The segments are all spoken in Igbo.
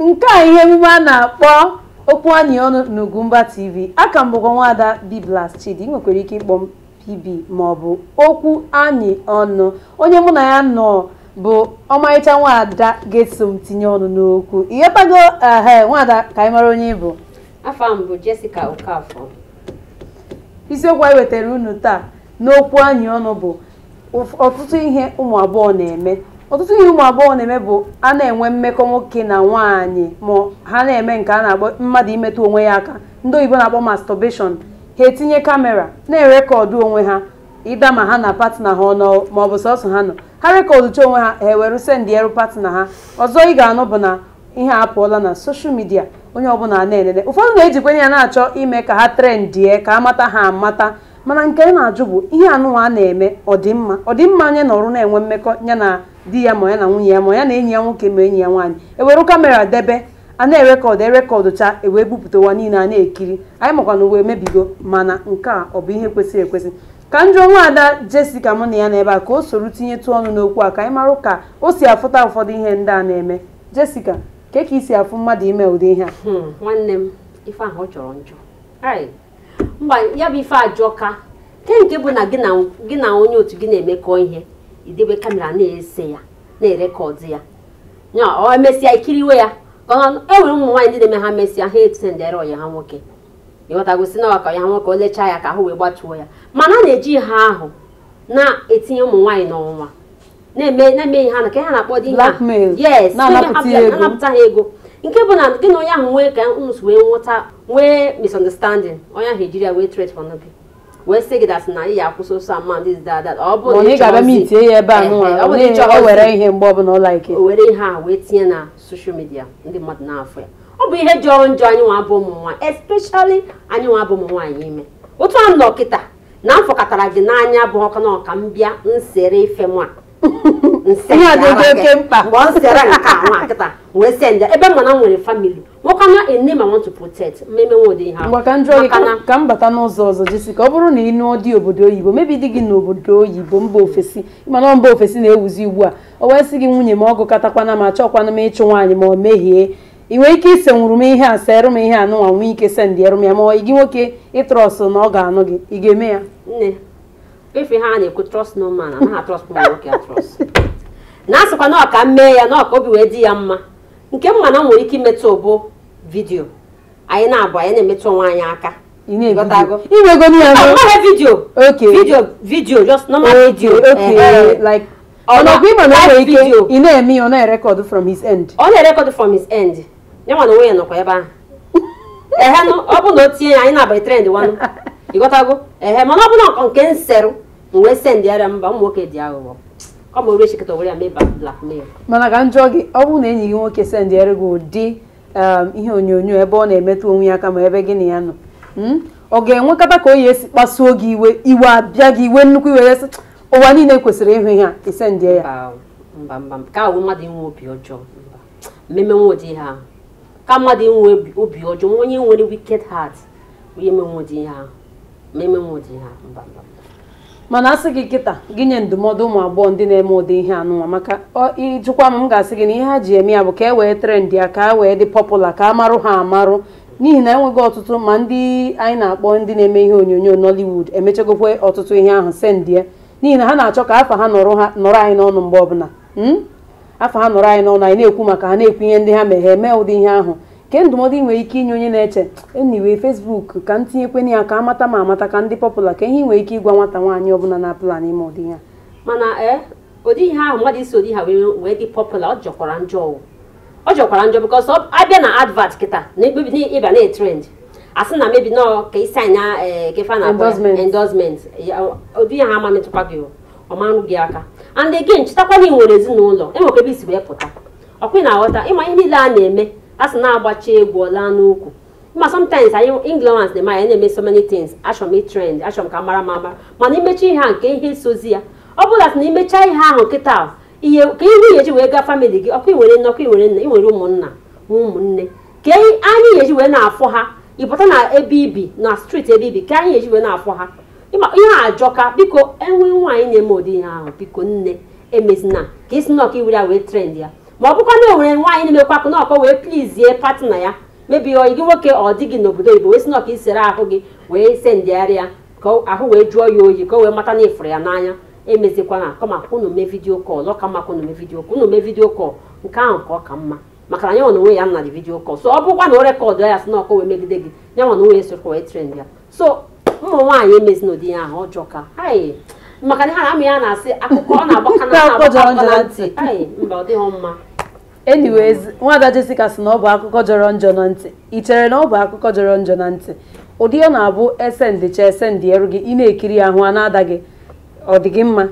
nke a ihe emume a na-akpọ okwu anyị ọnụ ugumba TV a m bụkwa nwada Biglas Chidi nwekwara ike ịkpọ m PB maọbụ okwu anyị ọnụ onye mụ na ya nọ bụ ọmarịcha nwada ga tinye ọnụ n'okwu ịghọtago ehe nwada ka anyị mara onye bụ afọ m bụ Jessica Okafor isiokwu anyị wetara unu taa n'okwu anyị ọnụ bụ ọtụtụ ihe ụmụ agbọghọ na-eme ọtụtụ ihe ụmụ agbọghọ na-eme bụ a na-enwe mmekọ nwoke na nwaanyị ma ha na-eme nke a na-akpọ mmadụ imetụ onwe ya aka ndị oyibo na-akpọ mastọbeshọn ha etinye kamera na-erekọdụ onwe ha ịda ma ha na patna ha ọnụ ma ọ bụ sọsọ ha nọ ha rekọdụ rekọdụcha onwe ha ha ewere sendị eru patna ha ọzọ ị ga-anụ bụ na ihe apụọla na soshal midia onye ọbụla na-enene ụfọdụ na-ejikwenye ya na-achọ ime ka ha trendie ka amata ha amata mana nke anyị na-ajụ bụ ihe anụwa a na-eme ọdịmma ọdịmma anyị nọrụ na-enwe mmekọ ya na di ya ma ya na nwunye ya ma ya na enyi ya nwoke ma enyi ya nwaanyị ewere kamera debe a na-erekọdụ erekọdụ taa ewee bupụtawa niile a na-ekiri anyị na uwe mebigo mana nke a ọ bụ ihe kwesịrị ekwesị ka nwa Ada Jessica mụ na ya n'ebe a ka o soro tinyetụ ọnụ n'okwu a ka anyị mara ka o si afụta ụfọdụ ihe ndị a na-eme Jessica ka ka isi afụ mmadụ ime ụdị ihe a hmm, nwanne m ife ahụ chọrọ njọ mba ya bụ ife ajọka ke nke bụ na gị na onye otu gị na-emekọ ihe idebe kamera na-ese ya na-erekọdụ ya nya ọ emesịa ikiriwe ya enwere ụmụ nwaanyị ndị na-eme ha mesịa ha etendere ọya ha nwoke ịghọtagosi na ọka ya nwoke olechaa ya ka ha wee gbatuo ya mana a na-eji ihe ahụ na-etinye ụmụ nwaanyị n'ọnwa na-eme ihe ha na ka ha na-akpọ di yes anapụta ha ego nke bụ na gị na onye ahụ nwee ka ns wee nwụta nwee misunderstanding onye ahụ ejiri ya wee tret for gị wee sị gị dasị na ị ya akwụsị ụsọ ama ọ bụ na ihe mgbe ọbụla ike o were ihe a wee tinye na soshal midia ndị mmadụ na-afọ ya ọ bụ ihe jọrọ njọ anyị nwa bụ ụmụ nwaanyị anyị nwa bụ ụmụ ime otu a nọ kịta na gị n'anya bụ na nsere ife nwa ihe oke mkpa mgbe ọ sịara nke a wee nwoke ene ma want nwere ka m bata n'ụzọ ọzọ jesi ka ọ bụrụ na ịnụ dị obodo oyibo mebi di gị n'obodo oyibo mba ofesi mana mba ofesi na-ewuzi ugbu a o wee sị gị nwunye ma ọgụ katakwana ma chọkwana m ịchụ nwaanyị ma ọ mehie ị nwere ike ise nwụrụ m ihe a serụ m ihe a nụnwa nwee ike sendịrụ ya ma gị nwoke ịtrọsụ na ọ ga-anụ gị ị ga-eme ya na-asịkwa na ọka mee ya na ọka obi wee dị ya mma nke mma na nwere ike imetụ ụbụ vidiyo anyị na-abụ anyị na-emetụ onwe anyị aka vidiyo vidiyo vidiyo vidiyo na ya ọ na-erekọd end ọ na end ya anyị na-abalị trend ịghọtago ehe mana ọ bụla nke nserụ m wee mba ụmụ nwoke ọ bụ orechekta were ya mee blackmail mana ka njọ gị ọ bụrụ na enyi gị nwoke sendịere gị ụdị ihe onyonyo ebe ọ na-emetụ onwe ya aka ma ebe gị na ya nọ ọ ga-enwekọta ka o ya esi kpasuo gị iwe iwe abịa gị iwe nnukwu iwe esi ụwa niile kwesịrị ịhụ ihe a isendie ya mba mba ka ahụ mmadụ inwe obi ọjọọ mmemme nwụdị ha ka mmadụ inwe obi ọjọọ onye nwere wicked heart onye menwụdị ihe ahụ mmemme nwụdị ha mba mba mana asị gị kịta gị nye ndụmọdụ ụmụ agbọghọ ndị na-eme ụdị ihe anụnwa maka ịjụkwa m m ga-asị gị na ihe ha ji eme ya bụ ka e wee trend ya ka a e wee dị pọpụla ka a marụ ha amarụ n'ihi na enweghị ọtụtụ ma ndị anyị na-akpọ ndị na-eme ihe onyonyo nollywood emechagokwe ọtụtụ ihe ahụ sendie n'ihi na ha na-achọ ka afa ha nọrọ anyị n'ọnụ mgbe ọbụla hmm? afa ha nọrọ anyị n'ọnụ anyị na-ekwu maka ha na-ekwu ihe ndị ha meghe mee ụdị ihe ahụ nke ndụmọdụ ị nwere ike inye onye na-eche eniwe fesbuk ka m tinyekwana ya ka amata ma amata ka ndị pọpụla ka ihe ị nwere ike ịgwa nwata nwaanyị ọbụla na-apụla n'ime ụdị ya mana ee eh, ụdị ihe ahụ mmadụ isi ụdị ha wee dị pọpụla ọ jọkwara njọ ọ jọkwara njọ bịkọs abịa na advat kịta na ịba na-etrend asị na mebi nọ ka isi anya eh, kefa na endorsement ụdị ya ha ama metụkwa gị ọmarụ gị aka and again chetakwana ị nwere ezinụlọ enwekwa isi wee pụta ọkwa ị na-aghọta ịma ihe niile a na-eme asị na-agbacha egwu ọla n'ukwu ma sometimes anyị ignorance na manya na-eme so many things achọm m achọm ka mara m ama mana imechi ihe a nke ihe sozi ya ọ bụla sị na imecha ihe ahụ nkịta ihe ka ihu yeji wee gaa famili gị ọkụ iwere nne ọkụ iwere nna iwere ụmụnna ụmụnne ka anyị yeji wee na-afọ ha ịpụta na ebe ibi na street ebe ibi ka anyị yeji wee na-afọ ha ihe ajọka biko enwe nwaanyị na-eme ụdị ihe ahụ biko nne emezina ka isi na ọkụ iwere ya wee trend ya ma ọ bụkwa na nwere nwaanyị na-emekwapụ na ọkọ wee plizie na ya mebi ọ gị nwoke ọ dị gị n'obodo oyibo wee sị na isere ahụ gị wee sendịgharị ya ka ahụ wee jụọ ya oyi ka o wee mata na ịfụrụ ya n'anya emezikwana kama unu mee vidiyo kọl ọ mma ka unu mee vidiyo kọl mee vidiyo kọl nke ahụ ka ọ ka mma maka na yanwa na onwe ya nna dị vidiyo kọl so ọ bụkwa na o rekọdụ ya sị na ọkọ wee megide gị yanwa na onwe ya sokwa wee trend ya so ụmụ nwaanyị emezina ụdị ya ahụ ọjọọ ka hai maka na ha amụ ya na-asị akụkọ ọ na-agbakọ na ntị mba ọ dịghị mma anyways nwada Jessica sị na ọ bụ akụkọ jọrọ njọ na ntị ị chere na ọ bụ akụkọ jọrọ njọ na ntị ụdị ọ na-abụ esendịcha esendị eru gị ị na-ekiri ahụ a na-ada gị ọ dị gị mma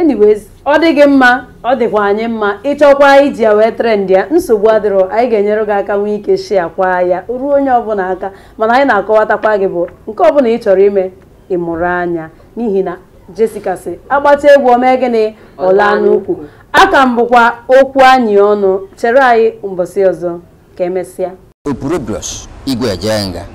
anyways ọ dị gị mma ọ dịkwa anyị mma ịchọkwa iji ya wee trendị ya nsogbu adịrọ anyị ga-enyere gị aka nwee ike shia kwa ya ruo onye ọbụla aka mana anyị na-akọwatakwa gị bụ nke ọbụla ị chọrọ ime ịmụrụ anya n'ihi na Jessica sị agbata egwu omee gịnị ọla n'ukwu aka m bụkwa okwu anyị ọnụ chere anyị mbọsị ọzọ ka emesịa. Opuro igwe